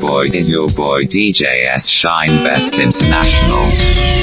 boy is your boy DJS Shine Best International.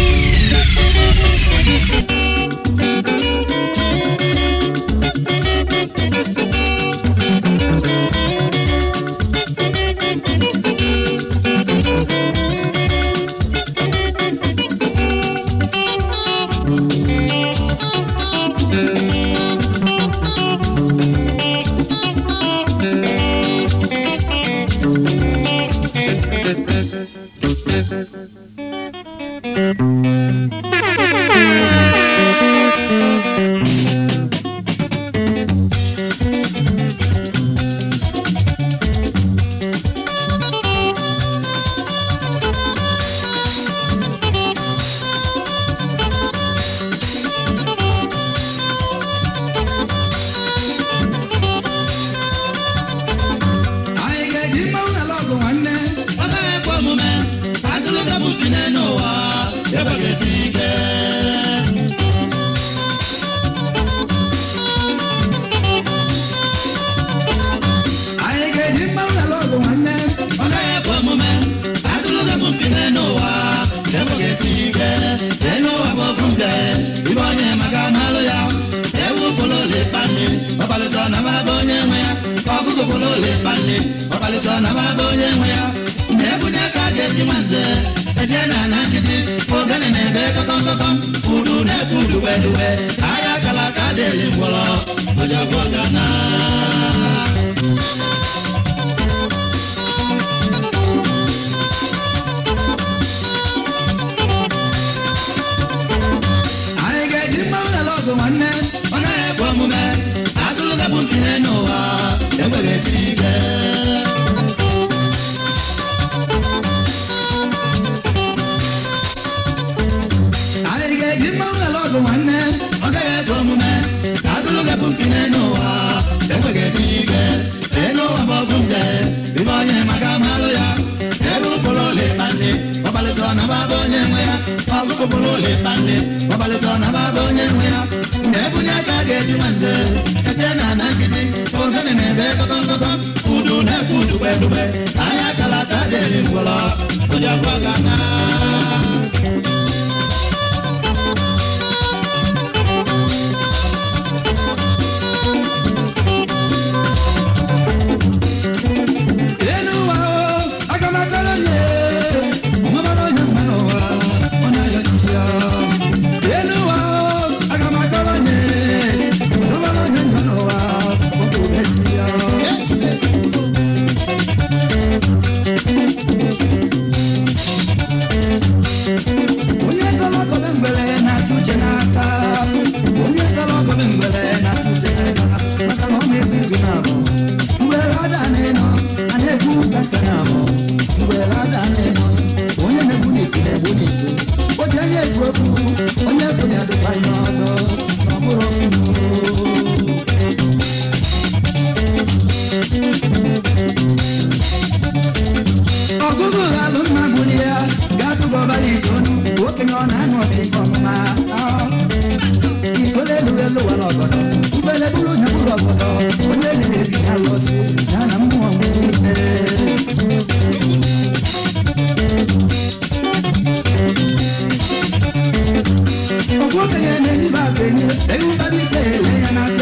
ọmọlì dunu okenye ọ na-anụ ọdịkọ mma ikole lụrụ elu wara ọgọdọ ubele bụrụ onye bụrụ ọgọdọ onye lere ebi na alụsị ya na mmụọ nwunye ọgwụ okenye na-enye ba akenye ewu babi ike ele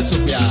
pode subir.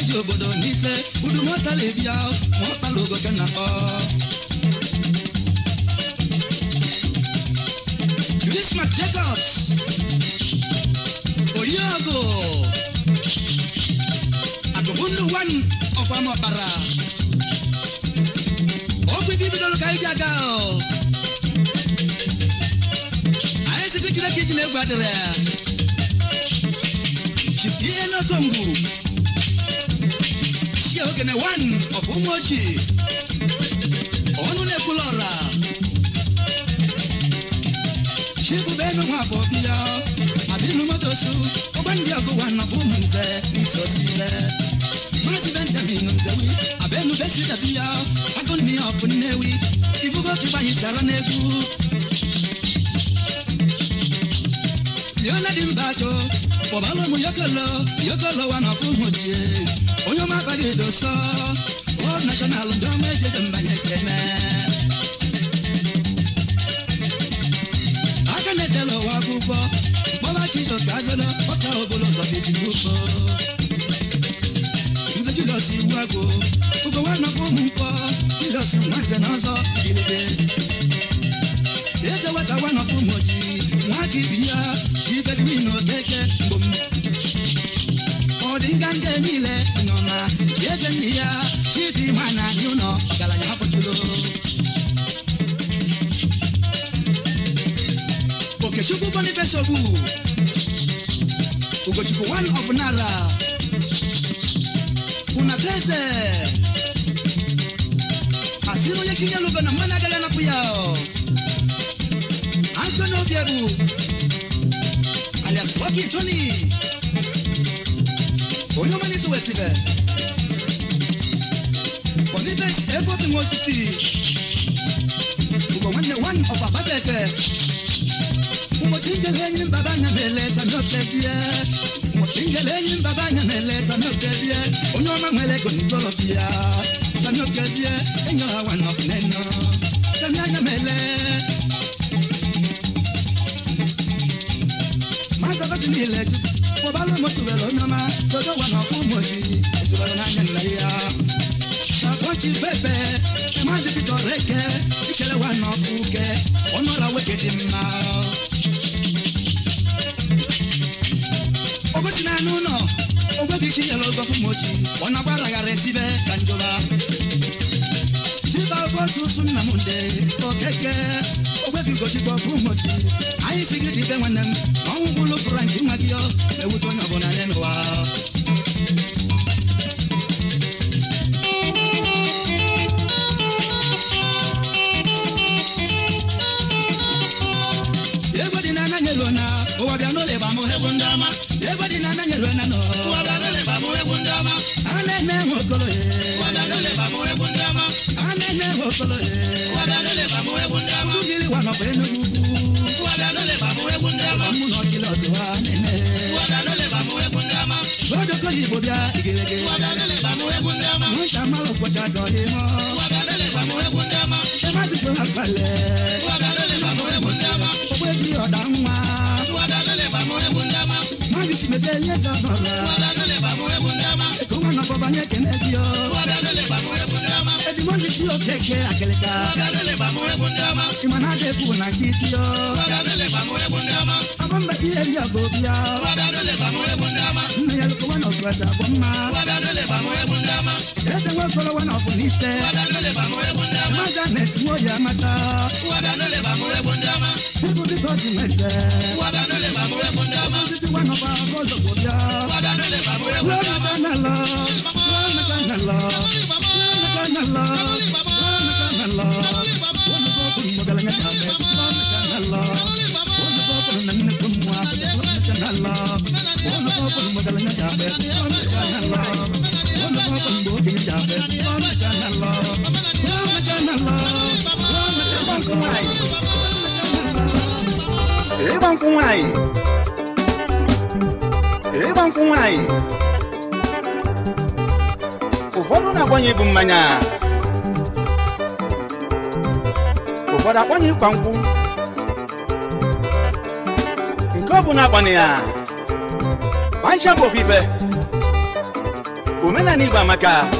eji obodo n'ise udumọtalibia maọkpala ogoke na akpọ Christmas Jacobs Oyago Agụbundu one ọkwa mọkpara ọgwụ ike bidoro ka iji aga anyị site Chineke ji na egwu adịrị ya chipie n'okomgbu Dj Ogene one of Umoji. Onule Kulora. Shibu benu mwabo biya. Abilu motosu. Obandi ago one of Umunze. Niso sile. Masi Benjamin Nzewi. Abenu besi dabiya. Agoni of Newi. Ifugo kiba hisara negu. Yona dimbacho. Wabalo mu yokolo. Yokolo one of Umoji onye ọma aka dị doso World National ndị ọma ejeje mbanye kene aka na-etela ụwa akwụkwọ gbọba chido ka azana ọka ogologo bidigbo nze Julius iwu agụ ugo nwa nọfọ ụmụ mkpọ Julius nwa nze na ọzọ ilebe eze nwata nwa nọfọ ụmụ ojii nwa ka ibi ya chi bedwin okeke mgbom ọ dị nganga niile Ajemiya, she man you know, Galanya Hapotulo. Okechukwu Boniface Obu, Ugochukwu one of Nara, Unatese, Asiro Yechinya Lubena Managala Napuyao, Anthony Obiebu, alias Rocky Tony, Oyomani Suwesibe. ebite egoting osisi ugo nwanne nwanne ọkwa kpatete eh? ụbọchị njele enyi mbaba anya na-ele sami otezie eh? ụbọchị njele enyi mbaba anya na-ele sami otezie onye ọma nwere ego n'ijọlọpi ya sami otezie enyi ọha nwanne ọkụ n'enyo sami anya mele maza basi niile jụrụ kpọbala motu were onye na ọkụ jí fẹ́fẹ́ ẹ má sì fi tọrẹ kẹ ìṣẹ̀lẹ̀ wa nà kú kẹ ọ̀nà ra wé kéde mma. ogójì náà nù nọ ogbé bí kí yẹlẹ ọgbà fún mọ́jì ọ̀nà bá ràgà rẹ síbẹ̀ kanjọba. jíba bó sunsun nàmúndé kọ kẹkẹ ogbé bí gòjì bọ fún mọ́jì àyè sigi ti bẹ́ẹ̀ wọn nẹ́mu ọ̀hún bolo fúra ìdí màgíyọ ewu tó Etumọ ni ti o keke akeleka. Imana de bu na ya wana ya mata. mese. wana ba Eban kumai. Eban kumai. Ụfọdụ na-agbanye bụ mmanya. Ụfọdụ agbanye ịkwa nkwụ. Nke ọ na agbanye ya. Bancha bụ ofufe. Omenala Igbo amaka.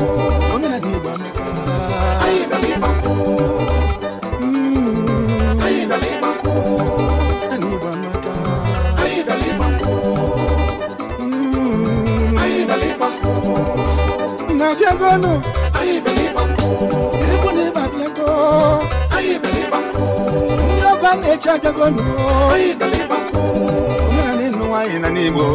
abịagonu ikwu na ibe abịago ndị ọgọ a na-eche abịagonu omenala ịnụ nwanyị na n'igbo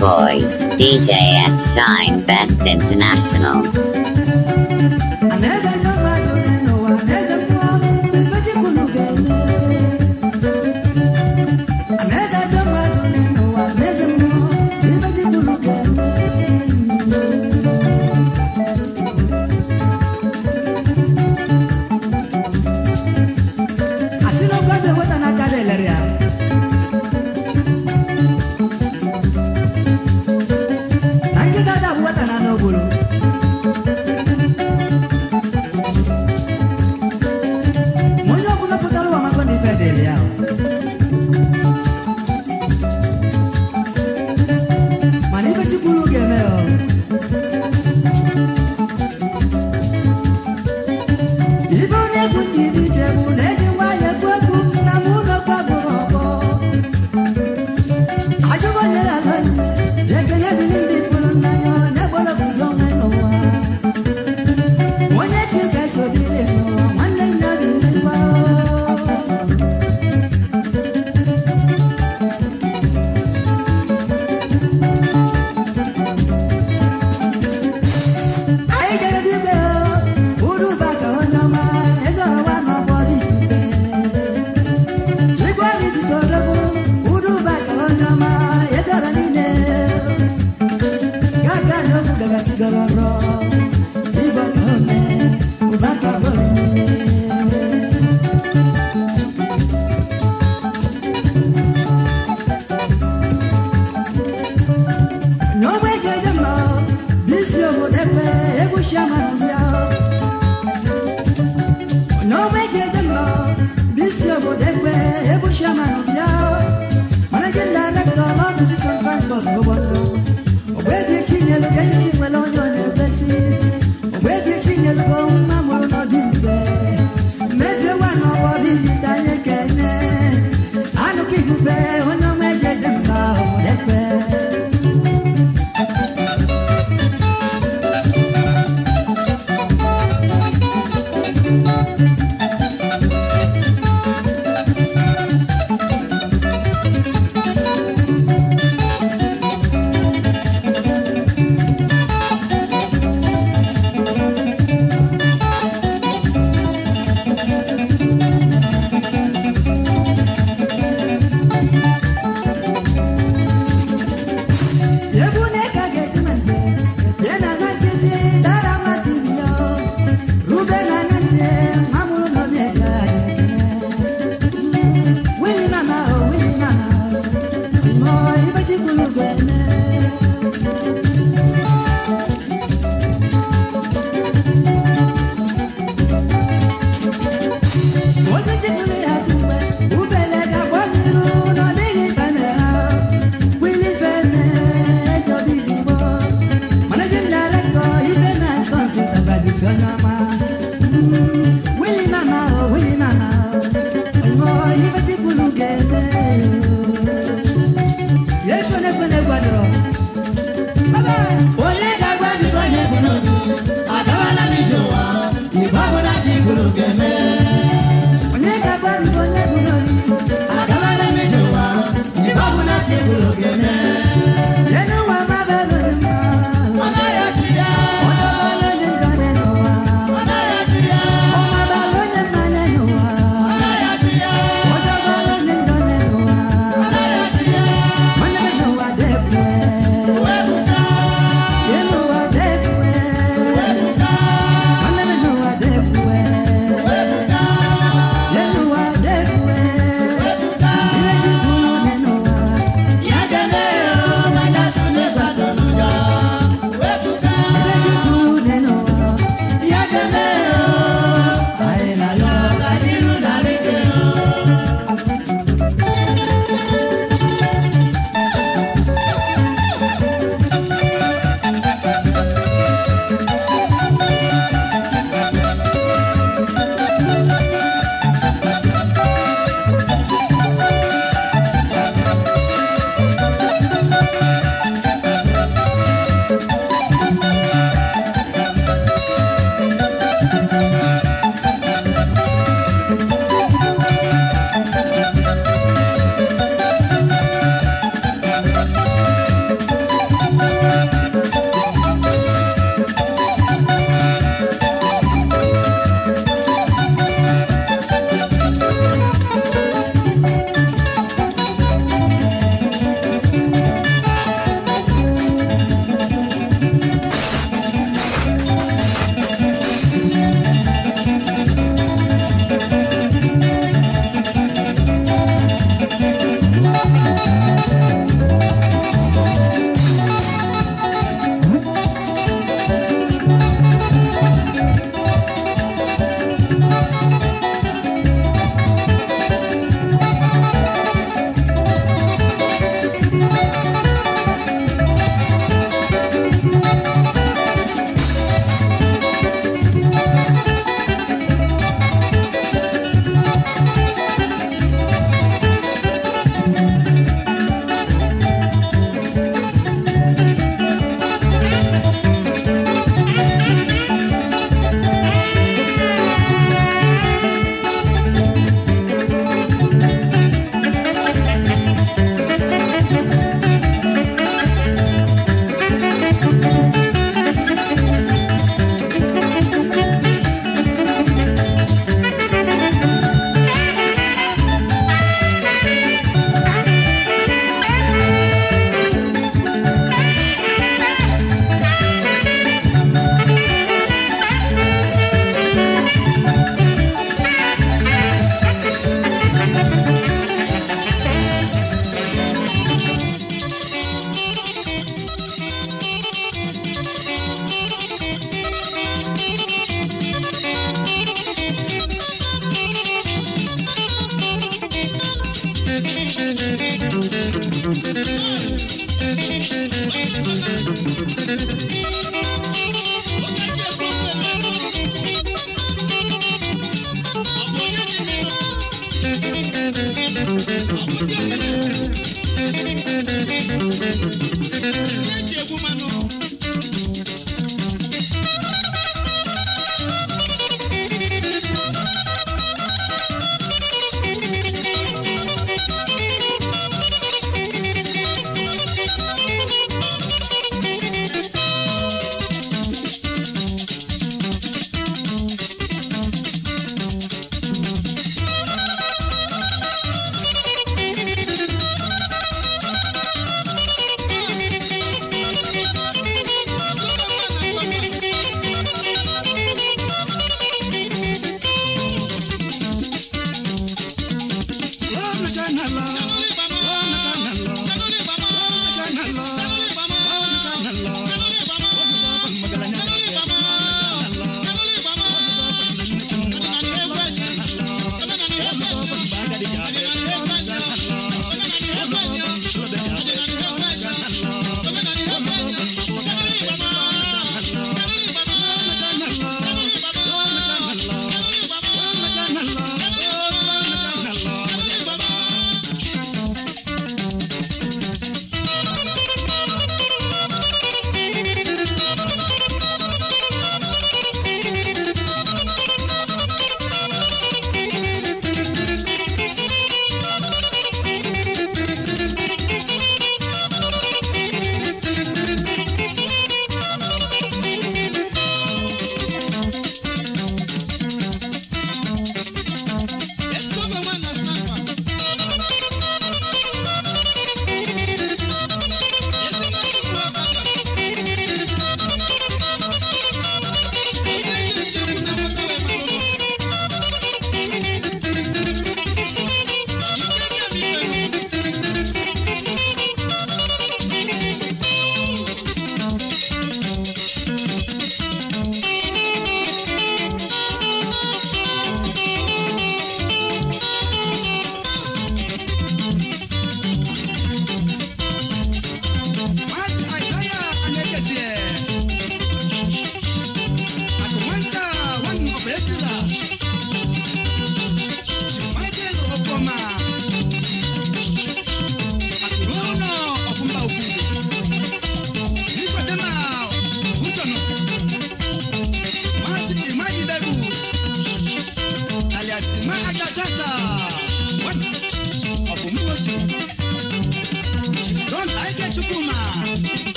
boy, DJ S Shine Best International. Thank you.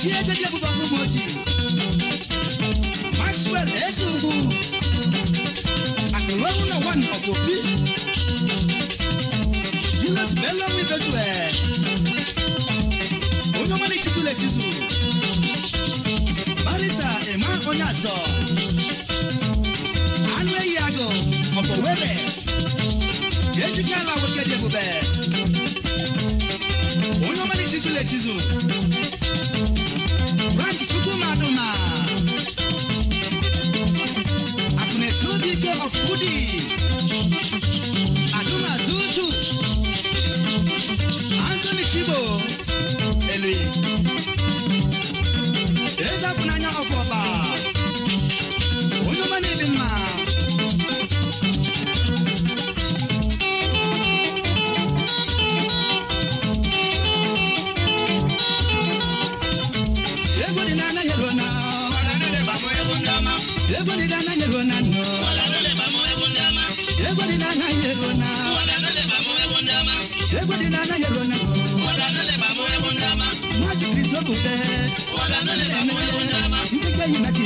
Chieze Diego Bambu Moji Maxwell Esungu Akelongu na one of Obi Julius Bello Mibezwe Onyomani Chisule Chisu Marisa Emma Onyaso Anwe Yago Opowere Jessica Lawoke Diego Bambu kizo rangi tukumaduma akunesu dike of goodies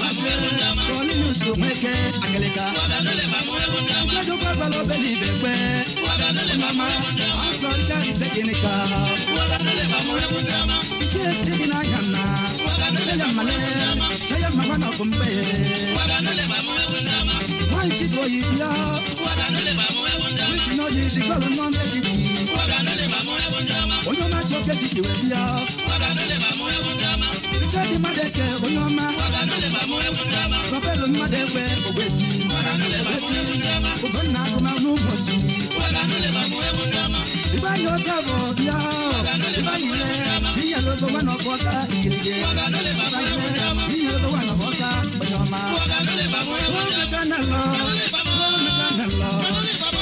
kọ́ni ní oṣù mẹ́kẹ́ àgẹ̀lẹ̀ka. Ṣéṣu pàgbà lọ bẹ́ẹ̀ ní ibẹ̀ pẹ́. Màmá àtọ̀ ṣáàrì tẹ́kìnì ká. Iṣẹ́ síbi náà yàn náà. Ṣéyà màlẹ́, ṣéyà màmá náà kò ń bẹ̀ yẹ. Wọ́n ṣì tó yìí bíá. Wíṣìnà yìí dìgbà ló ná méjì jì. Oyún máa ṣe ọkẹ́ jìjì wẹ̀ bíá richard madeke onye ọma prọfelo mmadụekwe ogbebi ugonna agụmahụ ụbọchị ịgbanye oge bụ bịa ịgbanyere inyelebe nwa na ọbọka igirige inyelebe nwa na ọbọka onye ọma chanelọ chanelọ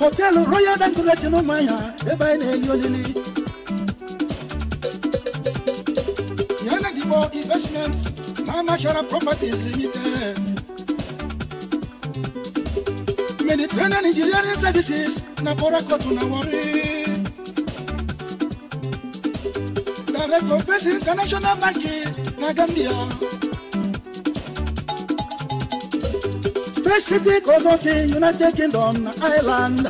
Hotel royal dankura tino maya eba ina eliolili yana dibo investments mama shara properties limited mediterranean engineering services na borako tuna wari director of international banking na gambia city cause of the United Kingdom Island.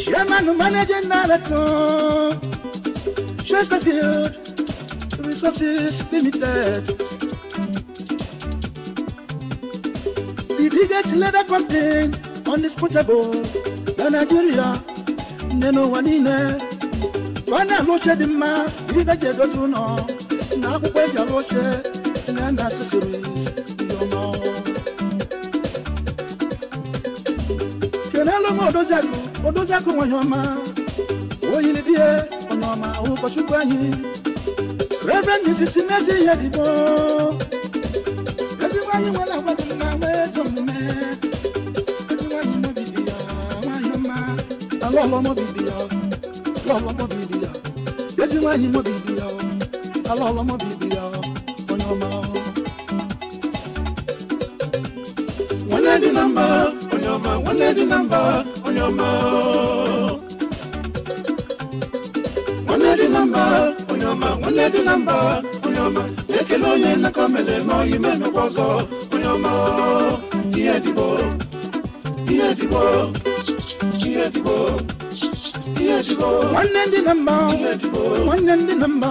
Chairman managing director Chesterfield Resources Limited. The biggest leather campaign undisputable than Nigeria. Neno wanine bana loche di ma ibi daje doju no na akwụkwọ eji alụ oche na no. Kenelo mo odozaku, odozaku wanyoma. Oyini die, onyoma ukochukwu anyị. Reverend Mrs. Nezi Yedibo. Ezigbo anyị nwere agwa dị mma nwee ezi omume. Ezigbo anyị mobidi ya, nwanyị ọma. Alọlọ ya, lọlọ mobidi ya. Ezigbo anyị mobidi ya, alọlọ mobidi ya. number, na mba onye ọma nwanne dị na mba onye ọma nwanne dị na mba onye ọma nwanne dị na mba onye ọma ekele onye nnaka mere n'oyi memekwa ọzọ onye ọma ihe dịbo ihe dịbo ihe dịbo One and the number, one and the number,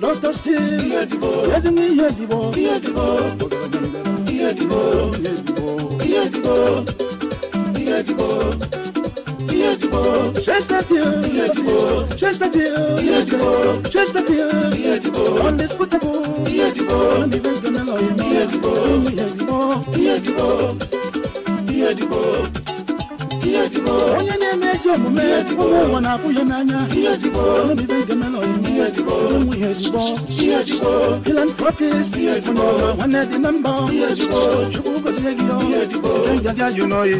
not a still, yes, me, yes, iye ìdìbò iye ìdìbò iye ìdìbò iye ìdìbò iye ìdìbò. Chesterfield iye ìdìbò Chesterfield iye ìdìbò Chesterfield iye ìdìbò undisputable iye ìdìbò undisputable iye ìdìbò iye ìdìbò iye ìdìbò iye ìdìbò. onye na-eme ezi omume ụwa na-afụ ya n'anya obibe ndemelon ụmụ ihe ejigbo philanthropist onye ọwa nwanne dị na mba chukwu gozie gị ọ njaja jụ n'oyi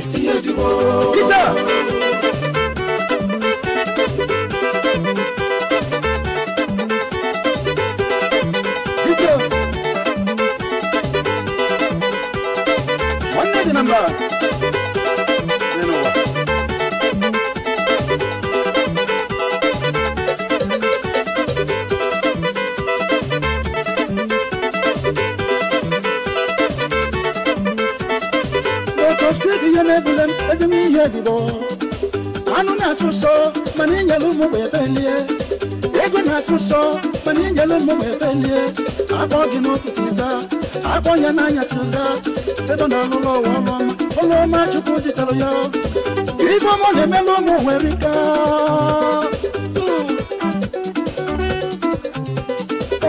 m ingele mmegbe ebelie akpọ gị n'ụtụtụ za akpọ ya n'anya si ụza ebe na alụlọ ụwa ọlụọma ọlụọma chukwu zitere ya ife ọma na-emela ụmụ nwere ike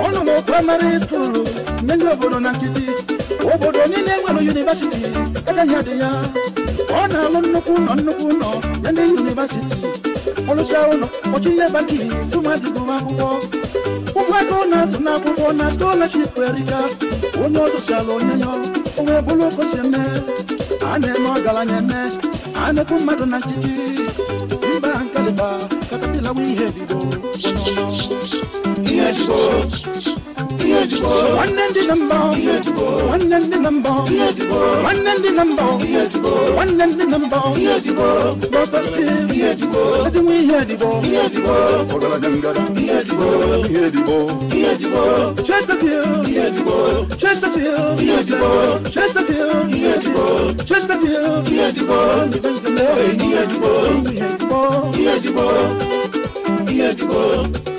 ọ nọ na praịmarị skuulu mmeri obodo na nkịtị obodo niile nwere yunivesiti egaghị adị ya ọ na-alụ nnukwu ụlọ nnukwu ụlọ na ndị yunivesiti ọlụsịa ụlọ ọchịnye banki sụmadịgoma akwụkwọ ụgbakọ na-atụ n'akwụkwọ na scholarship eriga onye ala onye ya ọrụ onwe bụrụ okosi eme a na-eme ọgaranya eme a na-ekwu mmadụ na nkịtị mba nkaliba katapila bụ ihe ebido ihe ebido One and the number. One and the number. One and the number. One and the number. Brother Steve. As we hear the ball. Ogala Gangara. Hear the ball. Chesterfield. Chesterfield. Chesterfield. Chesterfield. Hear the ball. Hear the ball. Hear the ball. Hear the ball. Hear the ball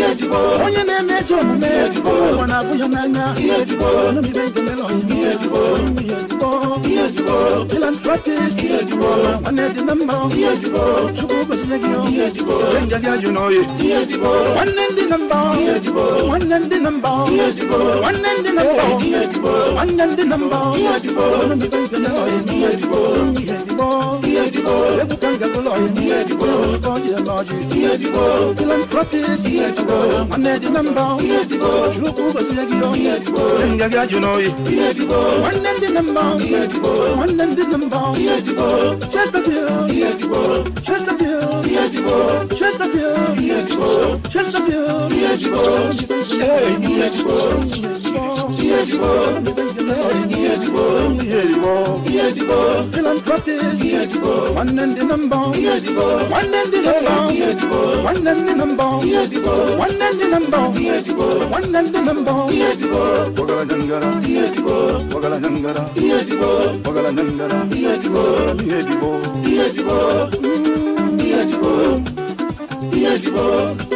onye na-eme ezi omume ụwa nwanne ndị na mba nwanne ndị na mba nwanne ndị na mba nwanne ndị na mba ẹ̀dìgbò. Ebùkànga tó lọ yìí ní ẹ̀dìgbò. Tọ́jú ẹ̀lọ́jì ní ẹ̀dìgbò. Philanthropist ní ẹ̀dìgbò. Ahmed Namba ní ẹ̀dìgbò. Ṣùkú Bàṣẹ́gìlọ ní ẹ̀dìgbò. Ẹ̀ngàgà Jùnọ̀ yìí ní ẹ̀dìgbò. Wọ́n lẹ́ndì Namba ní ẹ̀dìgbò. Wọ́n lẹ́ndì Namba ní ẹ̀dìgbò. Chesterfield ní ẹ̀dìgbò. Chesterfield ní ẹ̀dìgbò. Chesterfield ní ẹ̀dìgbò. Chesterfield ní Chesterfield ìdìbò you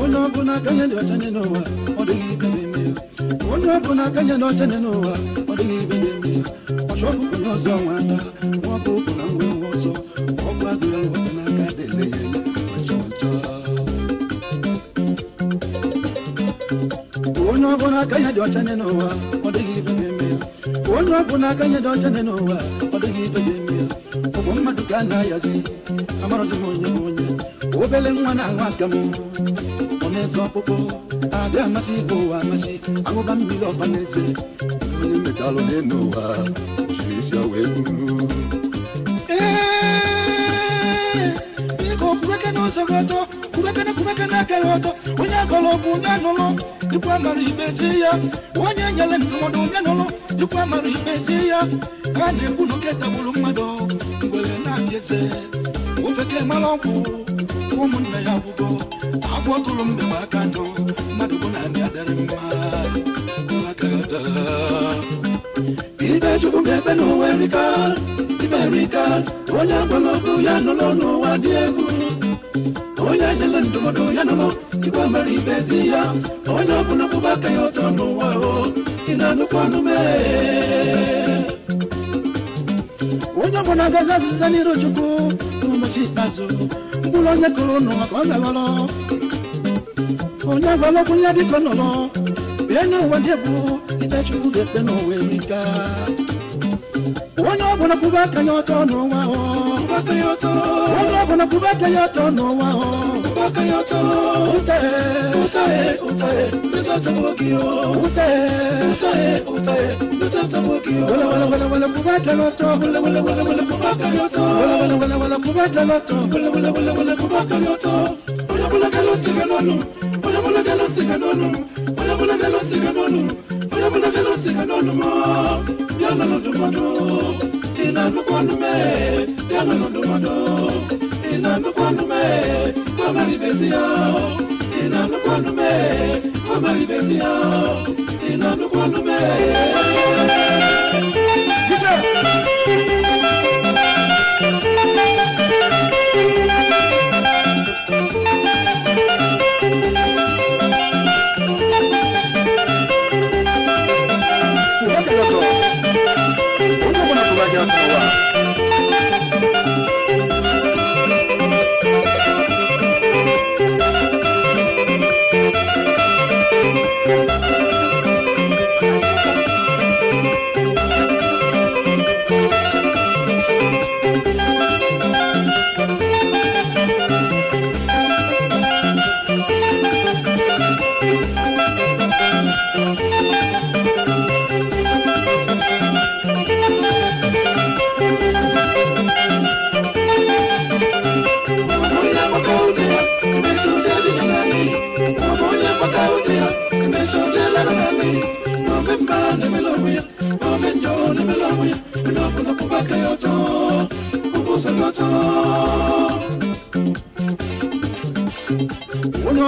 onye ọbụla akanye dị ọcha n'ụwa ọ dịghị ibe na-eme ya onye ọbụla dị ọcha n'ụwa ọ dịghị ibe n'ime ya ọchọ ọbụkụ na ọzọ nwa ada nwa ụkwụ na nwa nwa ọzọ ọgwụ ọrụ weta n'aka dịle ya onye ọbụla dị ọcha n'ụwa ọ dịghị ibe ya onye ọbụla dị ọcha n'ụwa ọ gana yazi amarozi monye monye obele mwana wakamu onezo popo ada amasi o masi awo ba mi lo panese ni metalo de noa jisi awe ya bulu eh iko kubeke no sogoto kubeke na kubeke na kehoto onya kolo kunya nolo ikwa maru ibeziya onya nyale ndomo dunya nolo ikwa maru ibeziya ya na egwu n'oke mmadụ ngwere na-abịa eze ofeke mara ọgwụ ụmụnne ya gwụgo agwọ tụrụ mgbe m aka ndụ mmadụ bụ na ndị adịrị mma ibe chukwu ga-ebe n'ụwa erika ibe erika onye agwala ya n'ụwa dị egwu onye nyere ndụmọdụ ya igwe ibe ezi ya onye ọbụla aka ya ọtọ n'ụwa o ị ụjọ bụ na agaghị azụza n'iru chukwu n'ụbọchị ikpeazụ mkpụrụ onye kụrụ ụnụ maka ọ gaghọrọ onye agwalọkwụ ya biko nọrọ bịa n'ụwa ndị bụ ikpe chukwu ga-ekpe n'ụwa erika onye ọbụla kwube aka ya ọtọ n'ụwa onye ọbụla kwube aka ya ọtọ n'ụwa Onye ọbụla galọtị ga n'ọnụ, onye ọbụla galọtị ga n'ọnụ mọọ diana ludumodo ina nukwanume diana ludumodo ina nukwanume kamari yao, ina nukwanume kamari besia ina nukwanume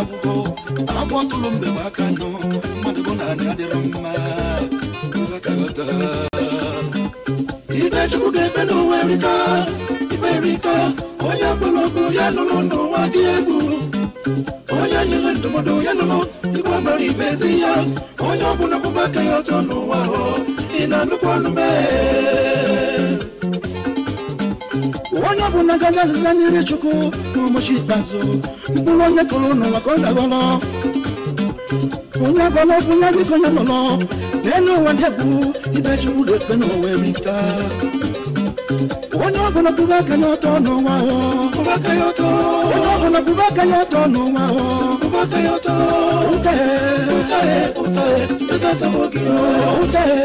agwụgo agbọtụrụ mbe m aka nọ mmadụ bụ na anị adịrọ mma ibe chukwu ga-ebe n'ụwa erika ibe erika onye gbụrụ ọgụ ya nụrụ n'ụwa dị egwu onye nyere ya nụrụ igwe mara ibe oya ya onye ọbụla ọgbụgba aka ya ọjọọ n'ụwa onye bụ na gaga azịza choko, chukwu ka ụbọchị ikpeazụ mkpụrụ onye kọrọ n'ụwa ka ọ dagọrọ onye agọrọ bụ onye dịka onye nọrọ n'elu ụwa ndị bụ ibe chukwu na-ekpe n'ụwa eri nka onye ọbụla bụba aka ya bote yoto Utae, utae, utae, metata mwagio Utae,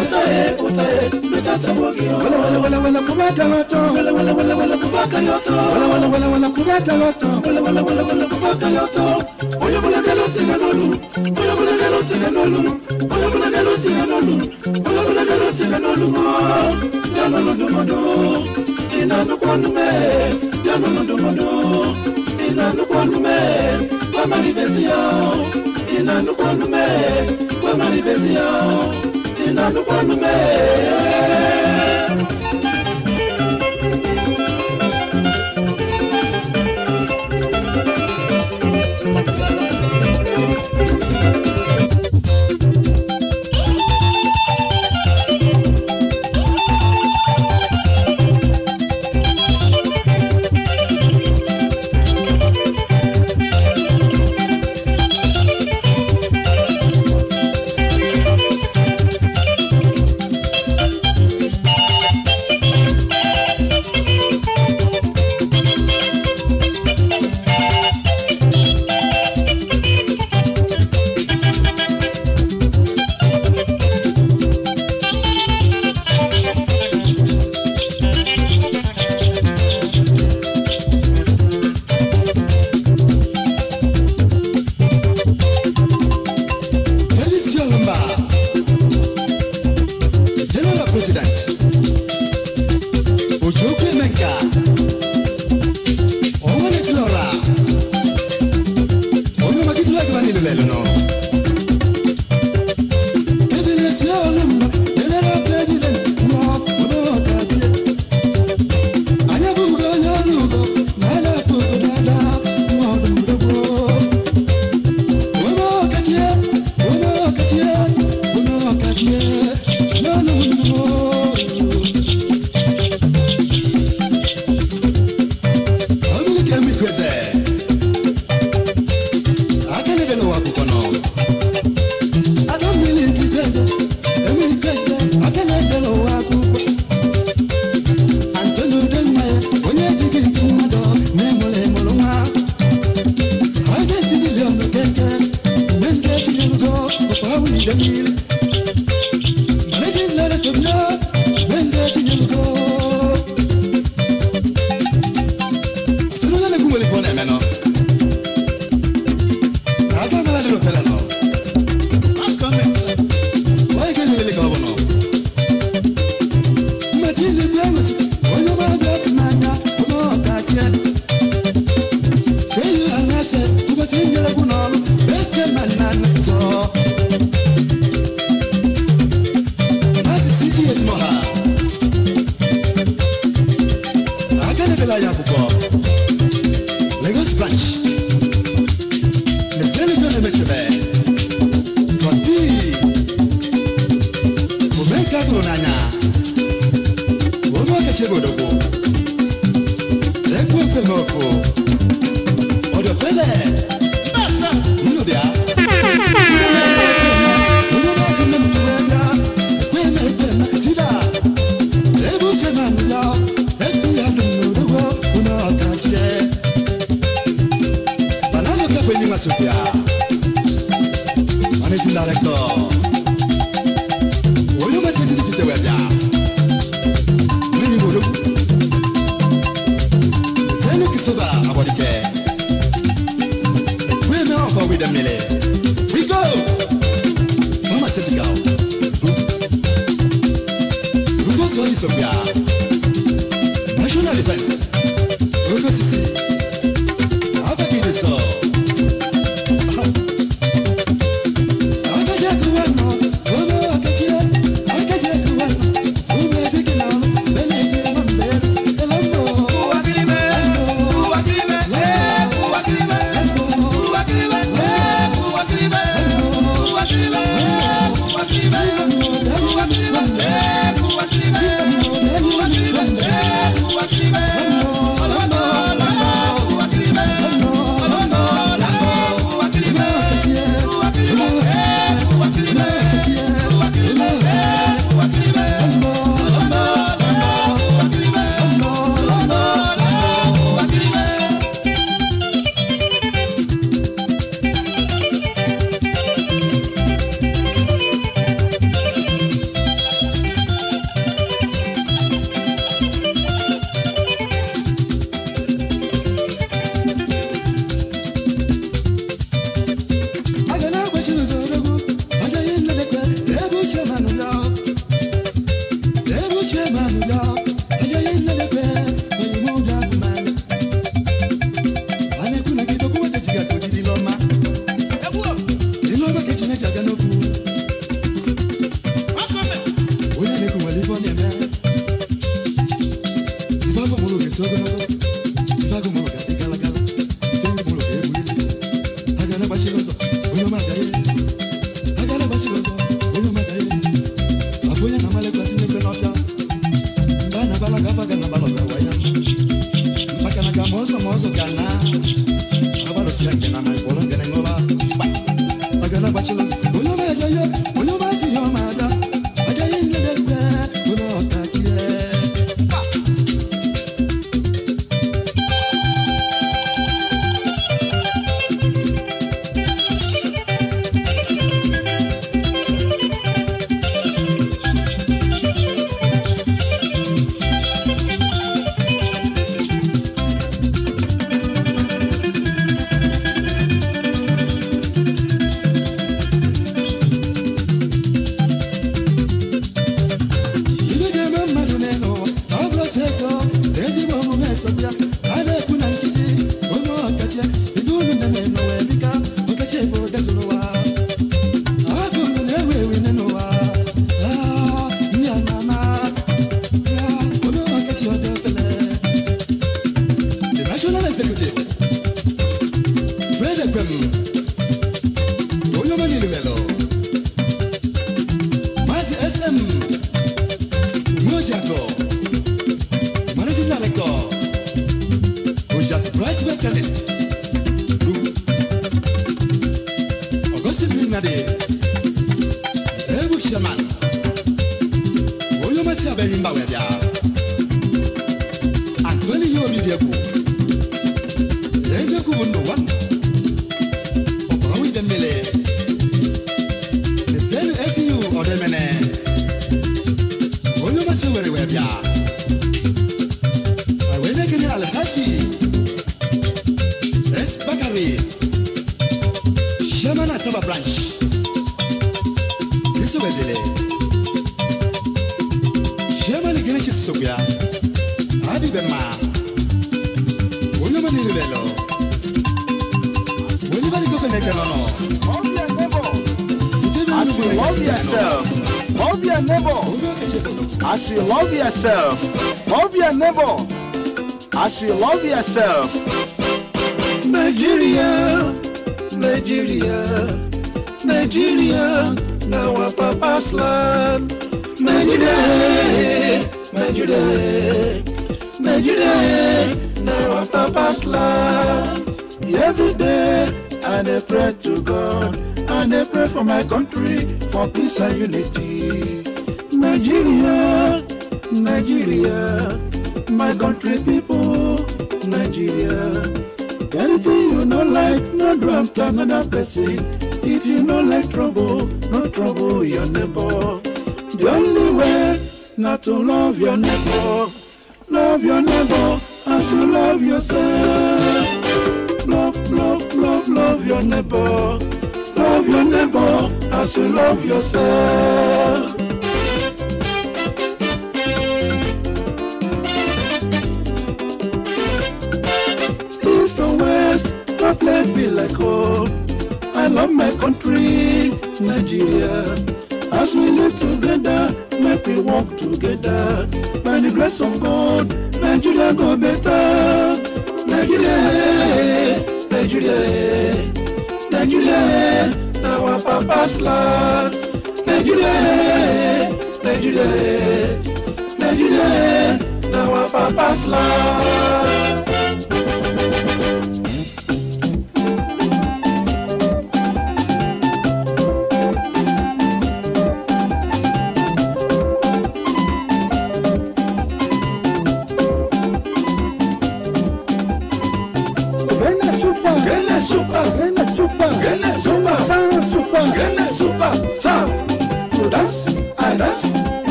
utae, utae, metata mwagio Wala wala wala wala kubata wato Wala wala wala wala kubaka yoto Wala wala wala wala kubata wato Wala wala wala wala kubaka yoto Oyo mwana galote ganolu Oyo mwana galote ganolu Oyo mwana galote ganolu Oyo mwana galote ganolu Ganolu dumodo Inanu kwanume Ganolu dumodo Inanu kwanume kwa manifestation inanukwanume kwa manifestation inanukwanume mão.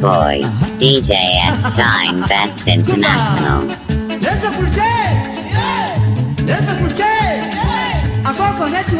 boy, DJ S. Shine Best International. Listen for Jay! Listen for Jay! connect to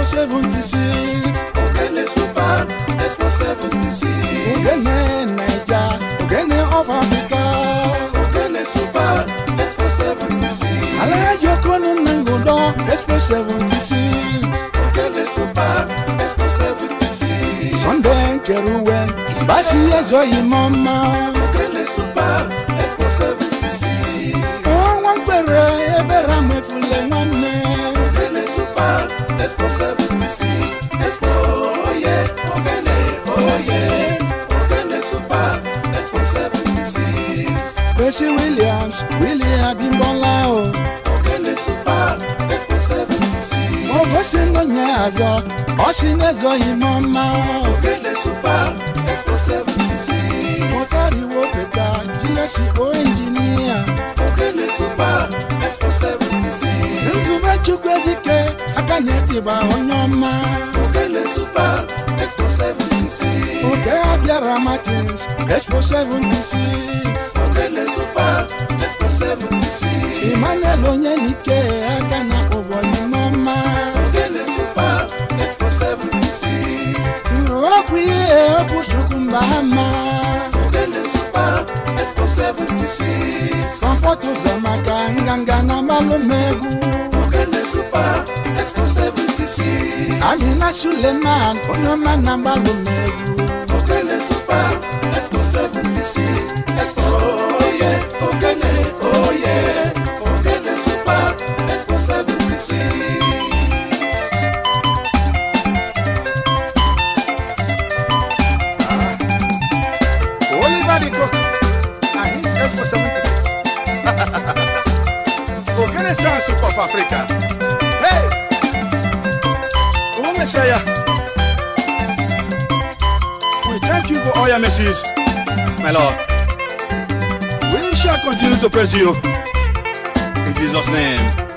Expo 76. Ogene Super Expo 76. Ogene Naija, Ogene of Africa. Ogene Super Expo 76. Alayo Kwanu Nangodo Expo 76. Ogene Super Expo 76. Sunday Keruwe, Basi Ezo Imoma. Ogene Super Expo 76. Oh, one expo seventy six oye Okene oye Okene super expo 76. six. Williams Willie Abimbola o. super expo seventy six. Mo gosi ngonya azọ super expo seventy six. Mo tariwo peta jilesi super expo Chukwu Ezike aka na etiba onye ọma Oge abịara Martins Expo 76 Emmanuel onye n'ike aka na-akpọ onye n'ọma okwu ihe okwu Chukwu mba ha ma kọmpọt maka nganga na mmalụ mmegwu Amina Suleman onye ọma na mgbalụ mercies, my Lord. We shall continue to praise you in Jesus' name.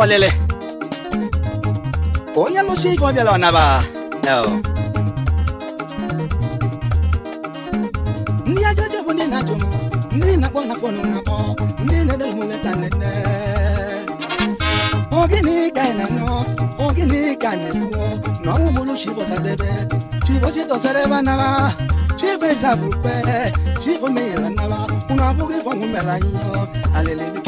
ụgbọ lele onye lụsi ike ọ ọnaba ndị bụ ndị na-ajụ m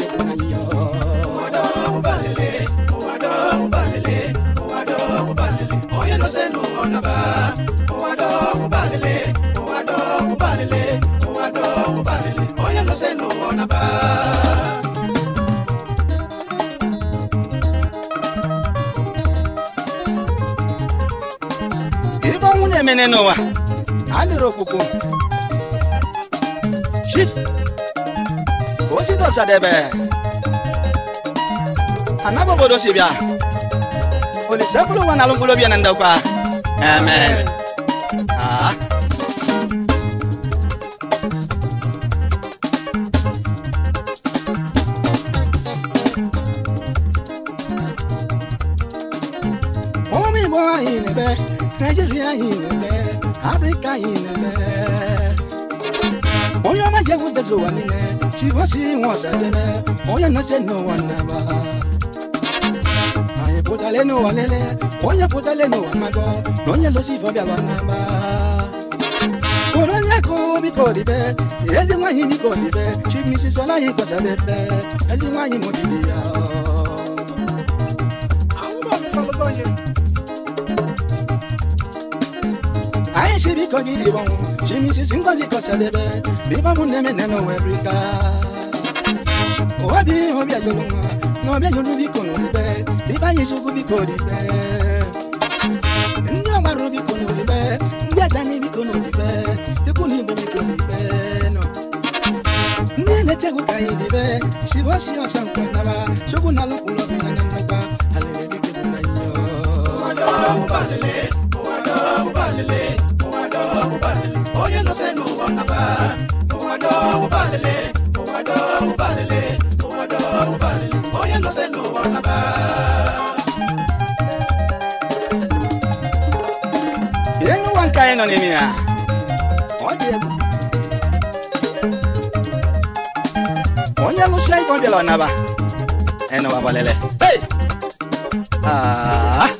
niile n'ụwa adịrị okpukpu Chief Osidosadebe anaba obodo si bịa Olise bụrụ ụwa na alụmkpụrụ obi na ndokwa amen so anime she was seeing what's anime oya no se no anaba aye potale no alele oya potale no amago lonya lo si fobia lo anaba koronya ko bi ko ribe ezi mwanyi bi ko ribe she misses ola yi ko sabebe ezi mwanyi mo dibiya Thank you. Hey, she be kogi di bon. She mi si singozi kosa debe. Bi ba mu neme neno Africa. Owa bi obi ajoluma. No bi ajolu bi kono dibe. Bi ba yesu ku bi ko dibe. Ndi amaru bi kono dibe. Ndi adani bi kono dibe. Iku bi kono No. Ndi elete ku kai dibe. She bo si osan kwa naba. Shogun alukulo bi nanamba. Alele bi kebu na yo. Wala wala nọ n'ime ya onye lụsia ibe ọ bịala ọnaba enụwa gbalele ah!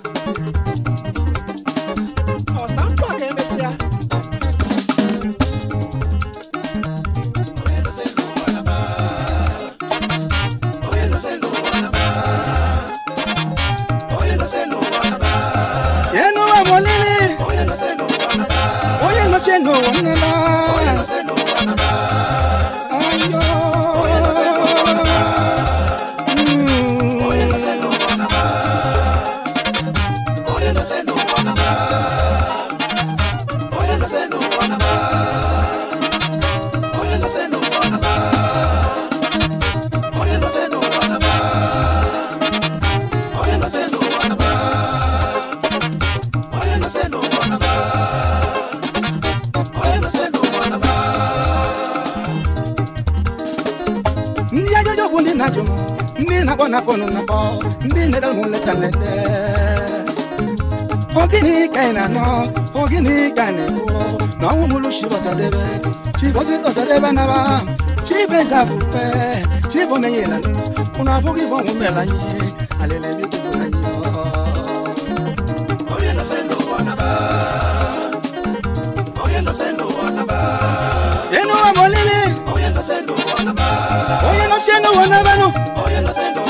la fupɛ sifo ne yɛlɛ kuna fo k'i fɔ n kun bɛ la n ye ale bi tugu la n ye. oye lase lo anaba oye lase lo anaba. inu wa mɔlili. oye lase lo anaba. oye lase lo anaba nu. oye lase lo.